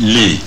les